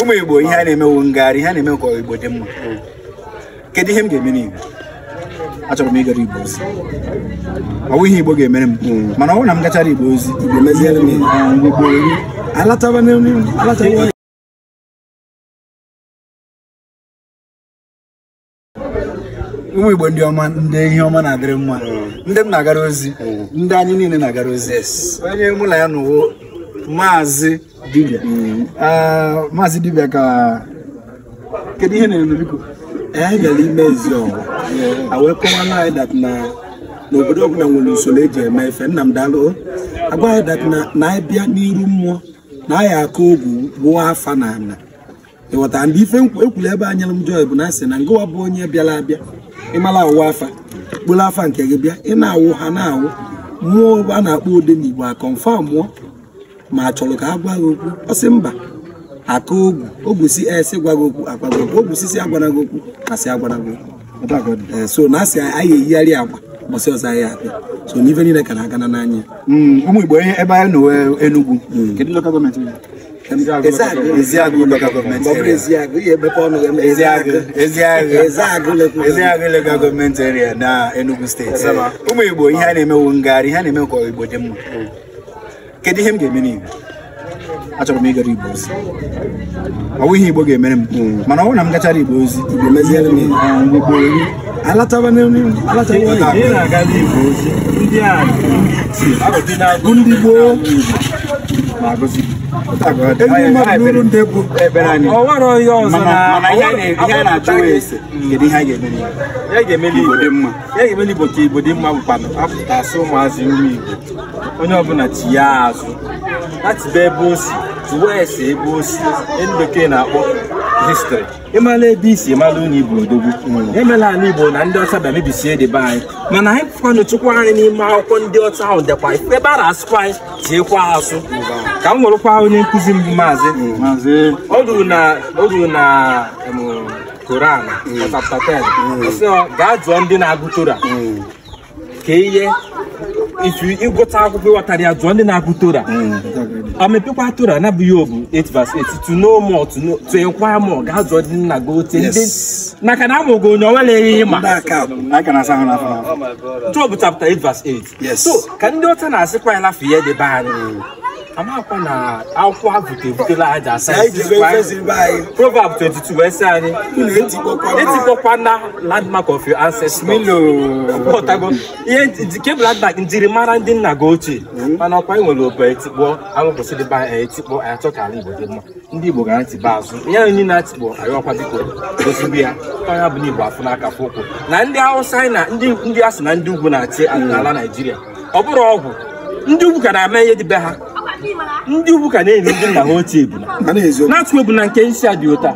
ụmụ igbo ihe a na-emewu ngagharị ihe a na-eme ka igbo dị mma kedu ihe m ga-eme n'igbo achọrọ m ịgara igbo ozi ọ ihe igbo ga-emere m mana ọ bụrụ na m gachara igbo ozi igbo meziere m igbo alataba n'elu ụmụ igbo ndị ọma ndị ihe ọma na-adịrị mma ndị m na-agara ozi ndị anyị niile na-agara ozi onye mụ na ya nụwo maazị dibịa maazị mm. ah, dibịa ka kedụ ihe na-eme biko a gara ime ezi ọwa wee anyị dat na n'obodo ọbụla nwere usoro eji eme efe nna m daalụ agwa anyị na anyị e n'iru mmụọ na anyị akụ ogwu afa na ana ịghọtara ndị ife ekwuru ebe anyalụ m jọy bụ na asị na ngụwa bụ onye bịara abịa ịmara awụwa afa kpụrụ afa nke gị bịa ị na-awụ ha na-awụ mmụọ a na-akpọ ụdị igbo akọmfa mmụọ ma achọrọ ka eh, a gwa gị okwu ọ mba aka ogwu ogwu si esi gwa gị okwu agwa gị okwu ogwu sisi agwara gị okwu asị agwara gị okwu so na asị anyị eyigharị agwa mbọsị ọzọ anyị abịa so n'ife niile ka na-aga na n'anya hmm, ụmụ Igbo ebe anyị nọwe Enugwu hmm. kedu lokal gọọmenti Ezeagụ lokal gọọmenti Ezeagụ lokal gọọmenti eria na Enugu steeti ụmụ Igbo ihe a na-emewu ngagharị ihe a na-eme ka Igbo dị mma hmm. kedu ihe m ga-eme n'igbo achọrọ m ịgara igbo ozi ọ ihe igbo ga-emere m mana ọ bụrụ na m gachara igbo ozi ndị gboo ya ga-emeli igbo dị mma ka igbo asụ ụmụazị nri igbo onye ọbụla tinye azụ atibe ebe o si tụwa ebe o si ndị bekee na-akpọ histri ịmala ebe isi ịmala onye igbo odogwu hmm. emela ala igbo na ndị ọcha bịa dịbe anyị mana anyị kwanụ chukwu anyị n'ime akwụkwọ ndị ọcha ahụ dịkwa ebe a na-asụkwa anyị tiekwa asụ ka m nwerekwa onye nkụzi mbụ maazị o hmm. na koran chapta 10 gaa jụọ ndị na-agụ tora hmm. ka ihe ịgụta akwụkwọ ịghọtara ya jụọ ndị na-agụ tora amepekwa tora nabụghị obu 8:8 tuno mọ tụekwa mọ gaa jụọ ndị nna gị ote maka na amụgo onye onwere ihe ịma jọb chapta 8:8 so ka ndị ọcha na-asịkwa ya lafe ya debe anyị amakwa na akwụkwọ ha bute ebutela aja proverb 22 wee sị anyị etikpọkwana e landmark of your ancestors ihe kebụl landmark njirimara ndị nna gị ochie hmm. mana ọkwa nwere obe etikpọ awụkwụsịdịba etikpọ anyị ala igbo dị mma ndị igbo ga na-atịba azụ ya onye na atikpọ anyị ọkwa biko ozugbo ya ọnya bụ n'igbo afụ n'aka fụ ụkwụ na ndị hausa na ndị asị na ndị ugwu na-achị ala naijiria ọ bụrụ ọgwụ ndị ugwu ka na-ama ihe dịbe ha ndị ugwu ka na-enye ndị nna ha otu ebuna na atụ ebuna nke isi a dị ụta